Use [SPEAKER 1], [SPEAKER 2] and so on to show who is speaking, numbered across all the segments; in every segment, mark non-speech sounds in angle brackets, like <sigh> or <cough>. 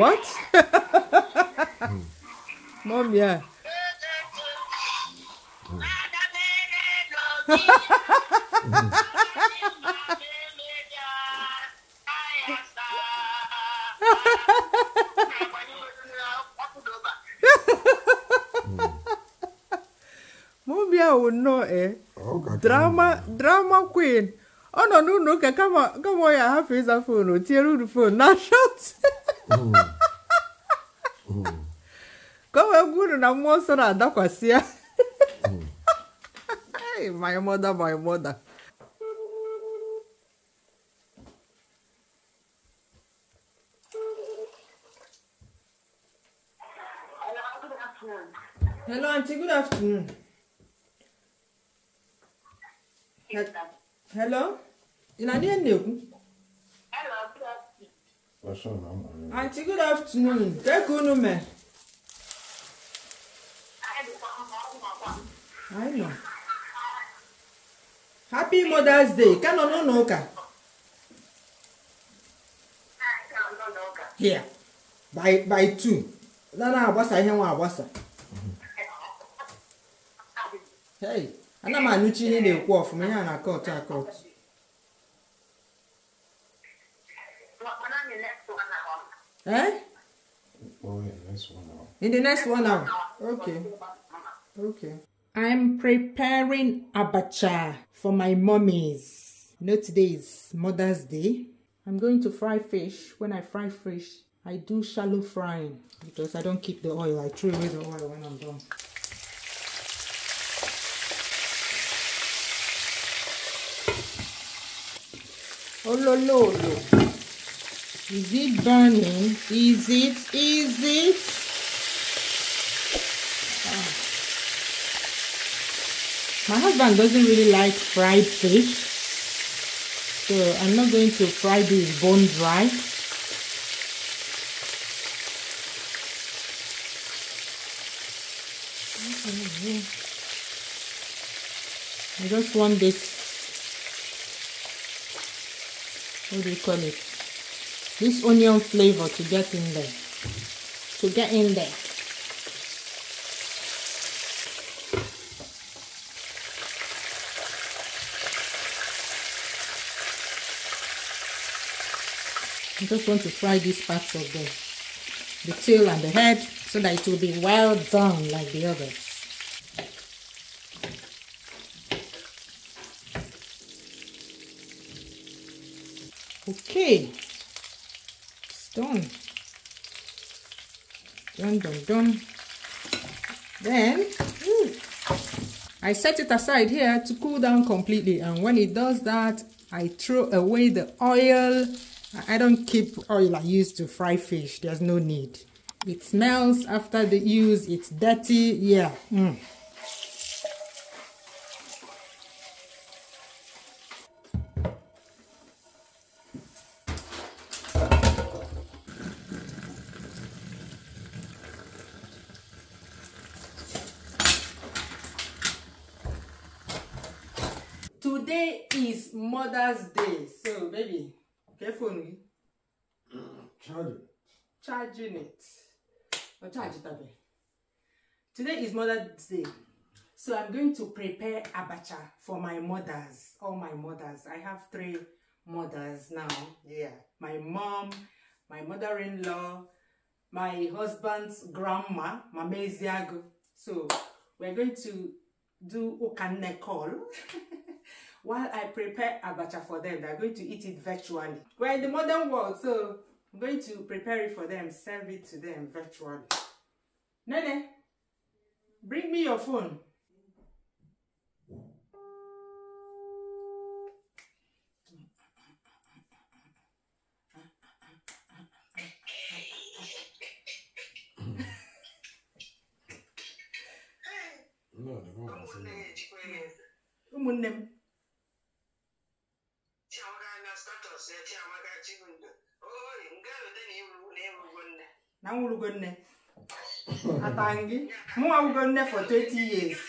[SPEAKER 1] What? Mom, yeah. Mm. Mom, yeah, would know, eh? Okay, oh, drama, okay. drama queen. ọ nọ n'ụlọ ụka kama ọ ya ahafụ ịza foonu o tiere uru foonu na shọt ka wee gwuru na mmụọ nsọ na-adakwasị ya my mother my mother Hello, Auntie. Good afternoon. He Hello? Ị na-adị na-ekwu? Auntie, good afternoon. Take unu me. I know. Happy Mother's Day. Kano no no ka. Here. By by two. Na ihe nwa agbasa. Hey, ana m anụchi ihe na-ekwu na-akọtụ Eh? Oh, in the next one now. In the next one Okay. Okay. I'm preparing abacha for my mummies. You know, today is Mother's Day. I'm going to fry fish. When I fry fish, I do shallow frying because I don't keep the oil. I throw away the oil when I'm done. Oh, no! No! No! Is it burning? Is it? Is it? Ah. My husband doesn't really like fried fish. So I'm not going to fry this bone dry. I just want this, what do you call it? this onion flavor to get in there to get in there I just want to fry these parts of the, the tail and the head so that it will be well done like the others. Okay done done done done then I set it aside here to cool down completely and when it does that I throw away the oil I don't keep oil I use to fry fish there's no need it smells after the use it's dirty yeah mm. today is mother's day so baby careful me. charging charging it or charge it abeg today is mother's day so i'm going to prepare abacha for my mothers all my mothers i have three mothers now yeah my mom my mother-in-law my husband's grandma mama so we're going to do okanne call <laughs> while I prepare abacha for them. They're going to eat it virtually. We're in the modern world, so I'm going to prepare it for them, serve it to them virtually. Nene, bring me your phone. <laughs> No, the one was in there. na wulugonne atangi mu awugonne for 20 years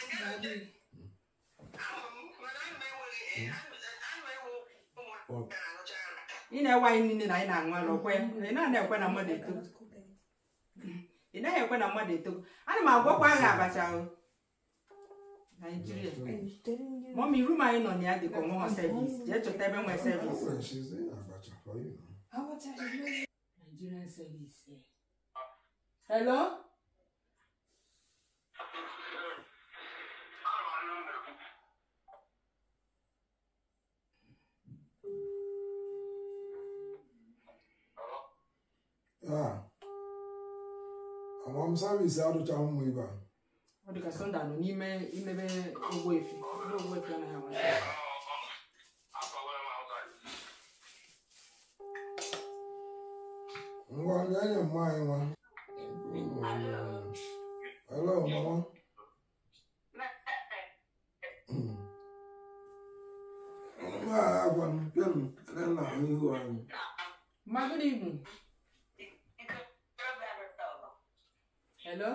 [SPEAKER 1] ị na-ewe anyị niile na anyị na-aṅụ ala okwe ị naghị ekwe na mmadụ eto ị naghị ekwe na mmadụ eto ana m agwakwa aha abacha Naijiria mọmi rum anyị nọ na ya dịka ọmụmụ servis jee chọta ebe nwe servis Nigerian service eh? hello. agbam service adụcha ụmụ ibe a ọ dịka sọnda nọ n'ime imebe ogbo efi ebe ogbo efi anaghị amasị ngwa nye nye mma anyị nwa Hmm. hello hello, mama. Ma good evening. Hello?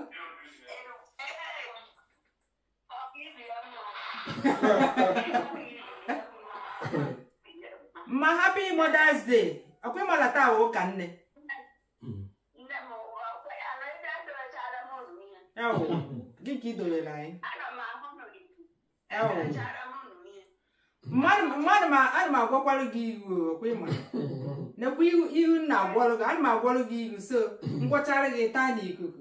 [SPEAKER 1] Ma happy Mother's Day. Akwai malata wo ka nne. Eo, giki dole lai. này. ma hono gitu. Eo. Man man mà ana ma gwa kwalu gi kwe ma. Na kwi ihu na gwalu nào ana ma anh mà ihu so ngwachara gi ta ni ikuku.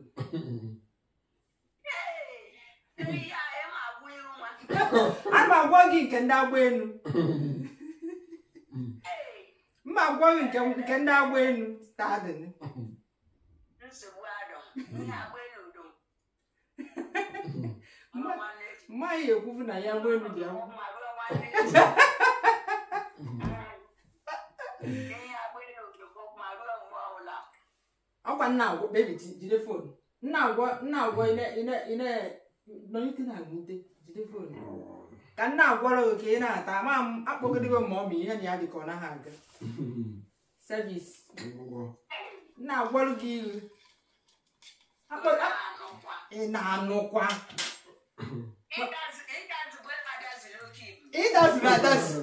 [SPEAKER 1] Ana ma gwa gi nke ndị agba enu. Mma gwa gi nke ndị agba enu ta adịnị. Nsogbu adọ, ndị agba mma yɛ ekufu na ya wɔ enu deɛ ho. akwa nna agwọ bebi jide fon nna agwọ nna agwọ ine ine ine nọnyite e, na agwute jide fon ka nna agwọrọ oke ị na-ata ama akpọgidego ma ọ bụ ihe na ya dịka ọ naghị aga sevis nna agwọrọ gị ihu ị na-anụkwa ịdaziri adazi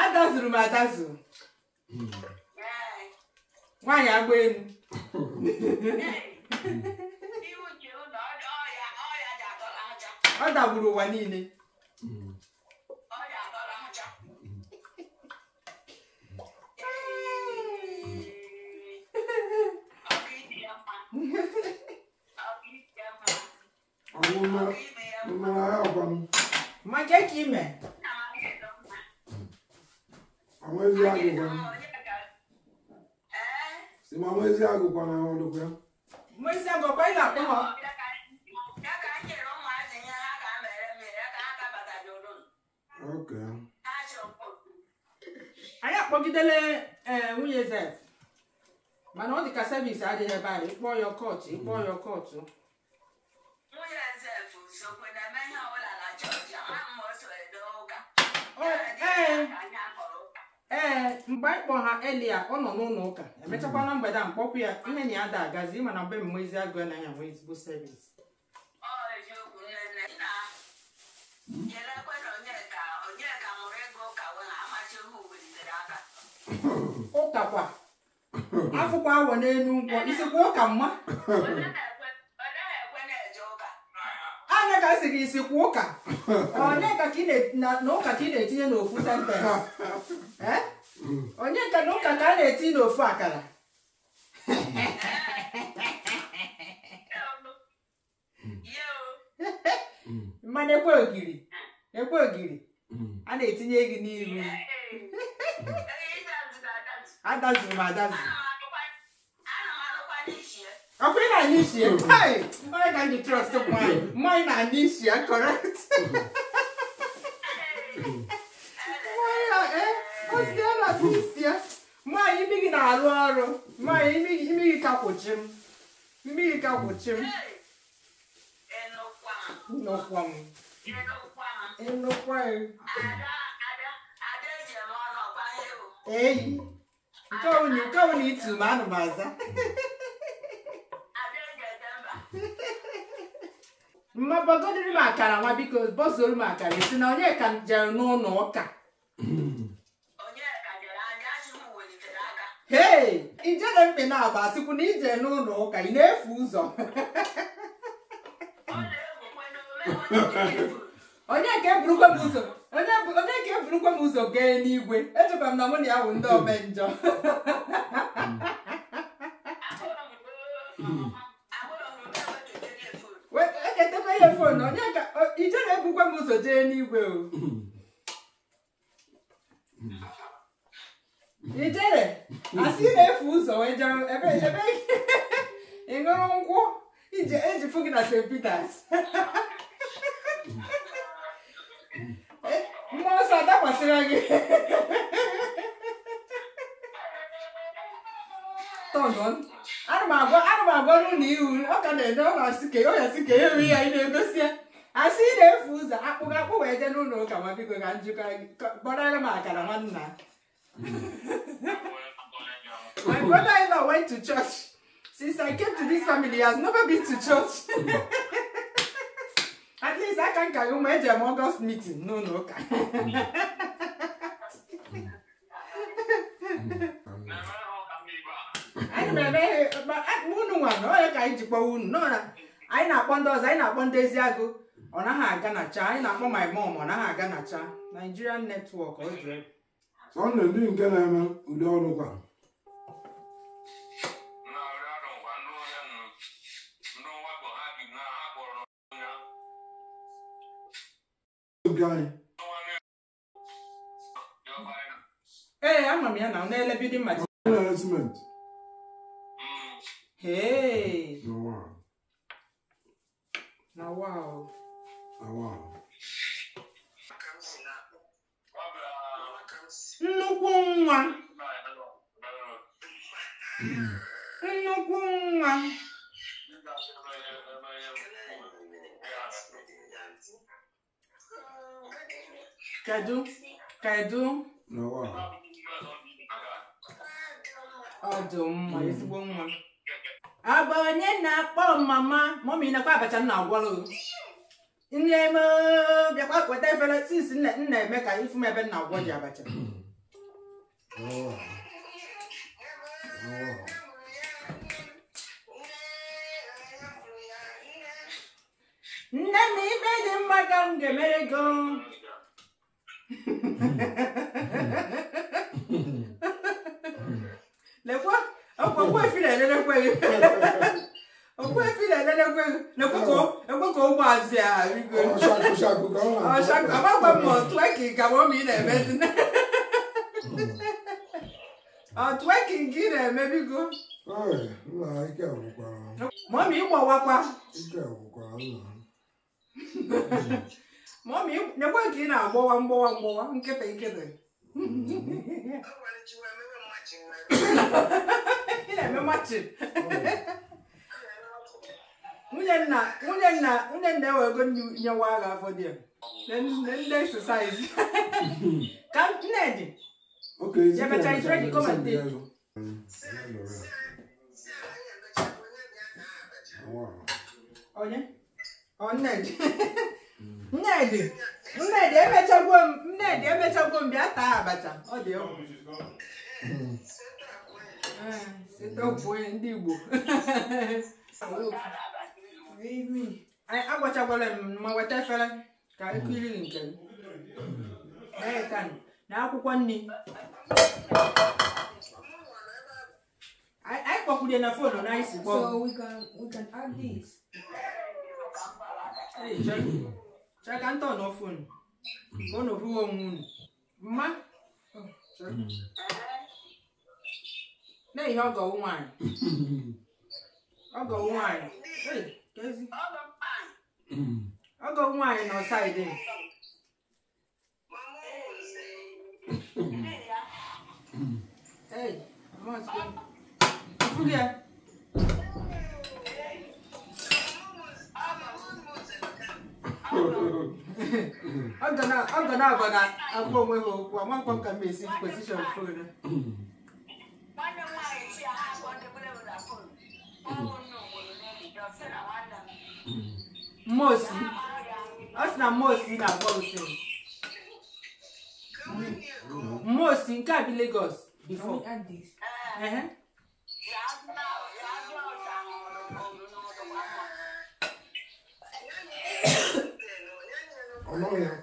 [SPEAKER 1] adazuru m adazụ nwaanyị agba elu ọ dagburu ụwa niile Majakime. Àwọn ezi agụkwa na. Si ma àwọn ezi agụkwa na àwọn ọdụkwa. Mụ ezi agụkwa ị na-akpọ ha. Anyị akpọgidele nwunye Zef mana ọ dị ka sevisi adịghị ebe anyị kpọọ ya kọọtụ ịkpọọ ya kọọtụ. ee eh, eh, eh, mgbe anyị kpọ ha elia ọ nọ n'ụlọ ụka emechakwa na mgbede a mkpọkwu ya ihe na ya da agazi mana mgbe mmezi agụ anaghị enwe ezigbo sevis ụkakwa afụkwa awọ n'elu nkwọ isikwa ụka mma ka si gị isi kwa ụka onye ka ị na-etinye n'ofu sentensị onye nka na ụka ka a na-etinye n'ofu akara mmanụ ekwe ogiri ekwe ogiri a na-etinye gị n'iru adazuru m adazuru na nishi mm-hmm. kai why can't you trust mine eh? mine na nishi correct mine na eh osi na nishi mine imi gị na-arụ ọrụ mine imi gị imi gị ka kwụchi m imi gị ka kwụchi m nnọkwa m nnọkwa m eyi nke ọ bụ na ị tụrụ anụ m aza mmabagodiri m akara nwa biko bọzoro m akara esi na onye ka jere n'ụlọ ụka ee ijere mkpe na-agba asịkwu na ije n'ụlọ ụka ị na-efu ụzọ onye ka eburukwa m ụzọ onye ka eburukwa m ụzọ gee n'igwe echebara m na mụ na ya bụ ndị omenjọ <laughs> m oh. oh, uh, <laughs> eh, <laughs> eh, so jee n'igwe o ijere asị na-efu ụzọ wee jere ebe ebe ị ṅụrụ nkwụ ije eji fụ st peters mmụọ nsọ adakwasịra gị tọnọn m agwa ana m agwa ru ihu ọ ka na-ede ọ na-asị ka ọ ya sị ka ya ri ya ị na-egosi ya asị ị na-efu ụzọ akpụkọ akpụ wee jee n'ụlọ ụka ma biko ka njikọ kpọrọ m akara nwanna my brother-in-law went to church since i came to this family he has never been to church <laughs> at least aka nka gị mgbe ejem august meeting n'ụlọ ụka anyị na-emeghe unu nwa na onye ka anyị ji kpọwa unu anyị na-akpọ ndị ọzọ anyị na-akpọ ndị eziagụ ọ naghị aga na cha anyị na-akpọ my mom ọ naghị aga na cha Nigerian network ọ jụrụ ọ na-edi nke na-eme ụdị ọrụ kwa ee ama m ya na n'ele bidin material hey na wow nnukwu nwa nnukwu nwa kedu kedu ọdụm ma ezigbo nwa abụ onye na-akpọ mama mọmi nakwa abacha m na-agwọrọ nne m bịakwa weta efere sinsi nna eme ka ịfụ m ebe nna agwọ ji abacha nne m ife dị mma ka m ga-emere go lekwa ọkwa nwa efere elerekwa gị okwefile lelekwe lekwe ka ekwe ka ụmụazị a rigo amagwa m ọtụeki ka m ọma ị na-emezi ọtụeki nke ị na-emebigo mọmi ịgbọwakwa mọmi nyekwa nke ị na-agbọwa mgbọwa mgbọwa nkịtị nkịtị ị na-eme machin nwunye nna nwunye nna nwunye nna e nwa agha afọ dị ndị sosaizi ka nnedi nnedi emechagwo m nnedi emechagwo m bịa taa abacha ọ dị hmm. Hmm, ndị igbo <laughs> agbachakwara m ma weta efere ka ekiriri nke m eekan na akwụkwọ nri anyị kpọkwurie na fonu na anyị si kpọ chaka ntọ nọ fonu ka ọ nọbụghị onwe unu mma na ihe ọgọwụ nwaanyị ọgọwụ nwaanyị <clears throat> ọgọ nwaanyị nọ saịdị ọ ga na-agba na agwa onwe ha okwu amakwam ka m esi pozishọn fon Mosi. Ọ na Mosi na-agwa osiri. Mosi nke a bi Lagos before. Uh-huh. ọlọ́run yẹn.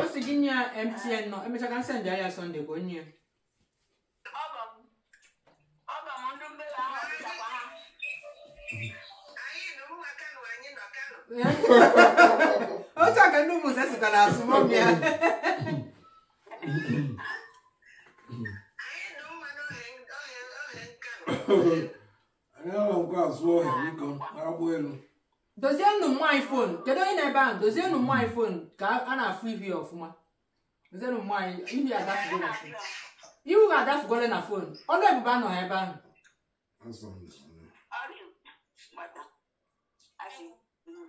[SPEAKER 1] ó sì dín ní mtn náà ẹ mẹsàkà ń sẹ̀ǹdì ayé sunday kò ní otu a aka ndị ụmụnze sịkwa na asụmọmị ya dozienụ nwaanyị fon kedu onye na-ebe ahụ dozienụ nwaanyị fon ka a na-afụ ihu ya ọfụma dozienụ nwaanyị ihu ya adafugola na fon ihu ga adafugola na fon ọnụ ebube anọ ebe ahụ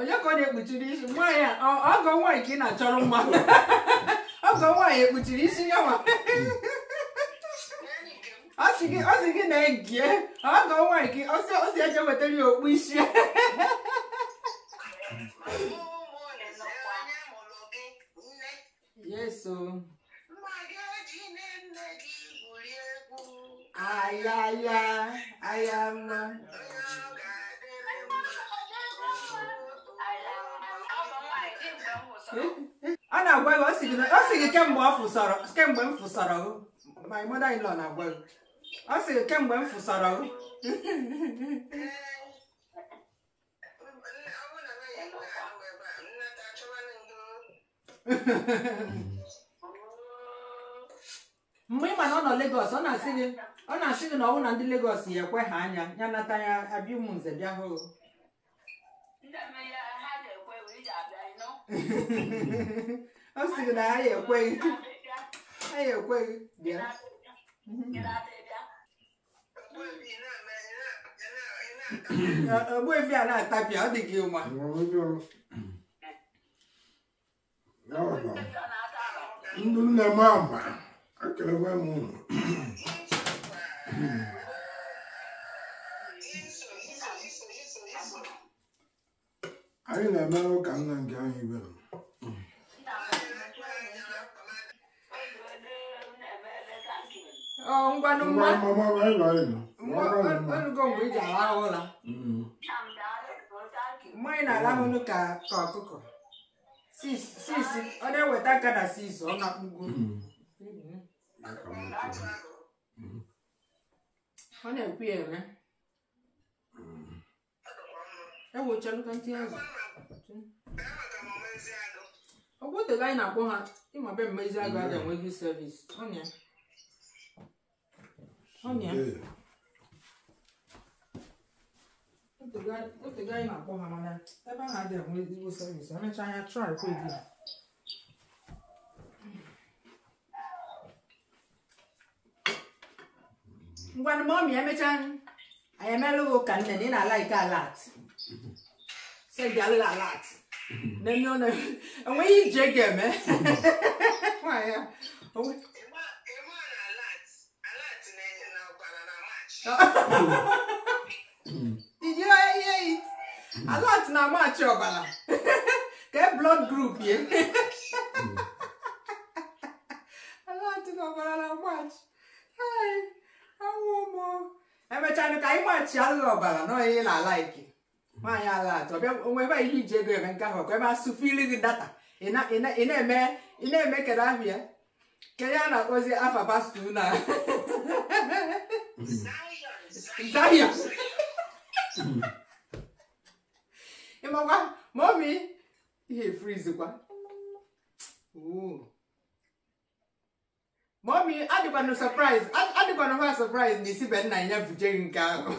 [SPEAKER 1] onye ka ọ na-ekpuchiri isi nwaanyị ọgọ nwaanyị ka ị na-achọrọ mma ọgọ <laughs> nwaanyị ekpuchiri isi ya ma <laughs> ọ sị gị na-egie ọgọ nwaanyị ka ọ si eje wetara ya okpu isi <laughs> yeso ayaya ayama a na-agwa gị ọ sị gị kemgbe kemgbe m fụsara my mother in na-agwa ọ si gị kemgbe m mgbe ị mana na ọ nọ ọ na-asị gị na ọnwụ na ndị legos ya ekwe ha anya ya nata ya abịa ụmụ nze bịa hụ ọ sịrị na anyị ekweghị anyị ekweghị bịa ogbuefi a na-atapịa ọ dị gị ụma ndị nne m ama ekelekwa m ụnụ anyị na eme ụka nna nke anyị ibere ọrụ iji na-arahụnụ ka ọkụkọ ọ na-eweta aka na sis ọ na-akpụgo mm. ọ na-ekwu ya eme ntị ntantị azụ ọgwụtega anyị na-akpọ ha ịma be mmezi agụ a enwe mm. enweghị servis ọnya ọnya otega anyị na-akpọ ha mana ebe a na adịghị enwe ezigbo servis emechaa anya trai kwa ego ngwanụ mọmi emechaa anyị emela ụka nne na ị na-ala ike alat say Galila a lot. No, no, no. And when you jig him, eh? Why? <laughs> Oh. Did you hear it? A lot na match your bala. <laughs> Get blood group, yeah. A lot na bala match. Hi, I want more. Every time you can match, I love bala. No, he like. nwaanyị ala atọ ọbịa onwe ebe ihe iji ego eme nke ahụ ka ebe asụfụ iri gị data ị na-eme ị na-eme kedu ahụ ya kedu a na-akpọzi afa pastọ na Zion ịmakwa mọmi ihe efrizikwa mọmi adịkwanụ surprise adịkwana ha surprise na isi be nna ya bujere nke ahụ <laughs>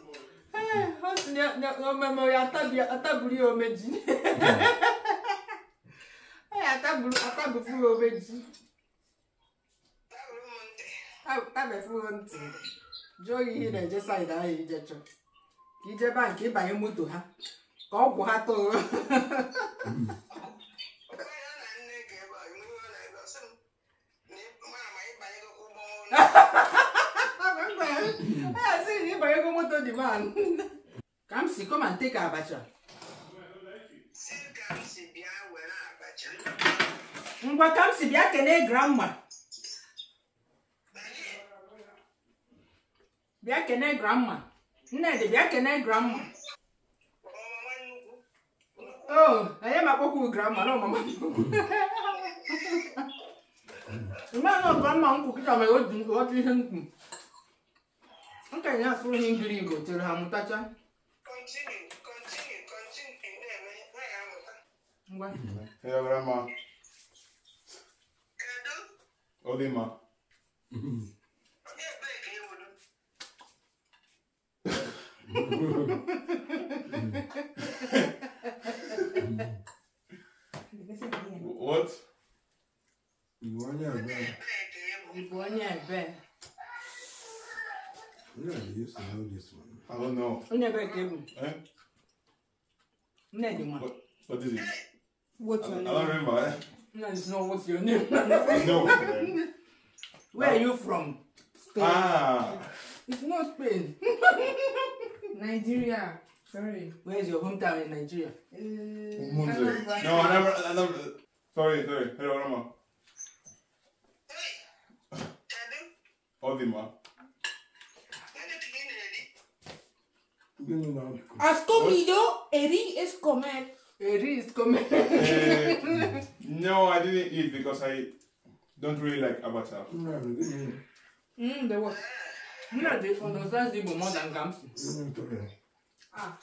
[SPEAKER 1] ọmọọmọ atábùrí ihe na-eje saịd ahụ ijecho ka ijebe nke ịbanye moto ha ka ọgwụ ha Ha ha ha ha ha ha Kamsi, come and take abacha. Ngwa Kamsi bịa kelee grandma. Bịa kelee grandma. Nnedị bịa kelee grandma. Oh, I am <laughs> a kpọkwu grandma No, na ọmama mmadụ ọgọmma nkwụ kịta mere otu ihe nkwụ. Nkenye asụrụ ihe ngiri igbo chere ha mụtacha. continue, continue, continue. Ngwa. What? you used to know this one? I don't know. You never gave Eh? Never. What, what is it? What's your I, name? I don't remember. Eh? No, it's not what's your name. no. Where are you from? Spain. Ah. It's not Spain. Nigeria. Sorry. Where's your hometown in Nigeria? Uh, I like no, I never, I never. Sorry, sorry. Hello, Rama. Odima. ¿Has comido? Eri es comer. Eri is comer. Eh, no, I didn't eat because I don't really like abacha. Mmm, there was. You know, they understand Igbo more than Gamsi. Ah.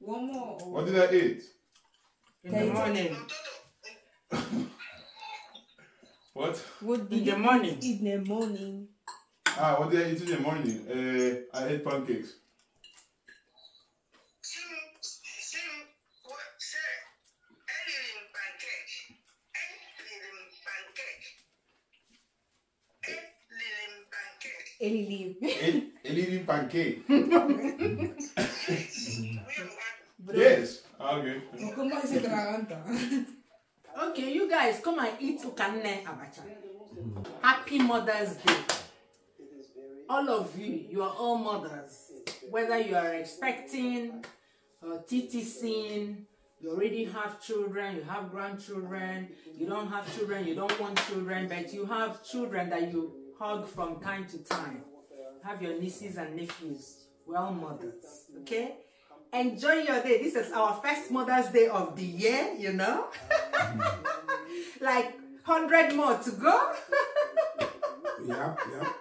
[SPEAKER 1] One more. What did I eat? In the morning. <laughs> what? What did in the morning. In the morning. Ah, what did I eat in the morning? Uh, I ate pancakes. Elilim. Elilim pancake. <laughs> yes. Ah, okay. okay, you guys come and eat ukane abacha. Happy Mother's Day all of you, you are all mothers, whether you are expecting, uh, TTCing, you already have children, you have grandchildren, you don't have children, you don't want children, but you have children that you hug from time to time. Have your nieces and nephews, We're all mothers, okay? Enjoy your day. This is our first Mother's Day of the year, you know? <laughs> like 100 more to go. yeah, <laughs> yeah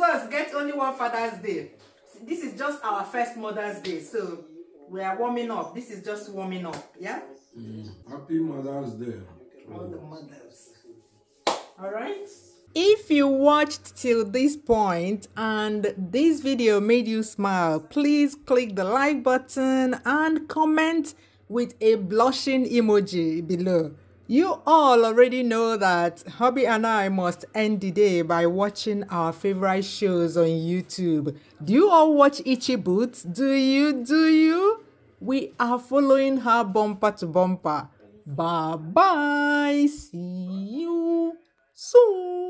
[SPEAKER 1] these ones get only one Father's Day. This is just our first Mother's Day, so we are warming up. This is just warming up, yeah? Mm. Happy Mother's Day. All the mothers. All right? If you watched till this point and this video made you smile, please click the like button and comment with a blushing emoji below. You all already know that Hobby and I must end the day by watching our favorite shows on YouTube. Do you all watch Itchy Boots? Do you? Do you? We are following her bumper to bumper. Bye bye. See you soon.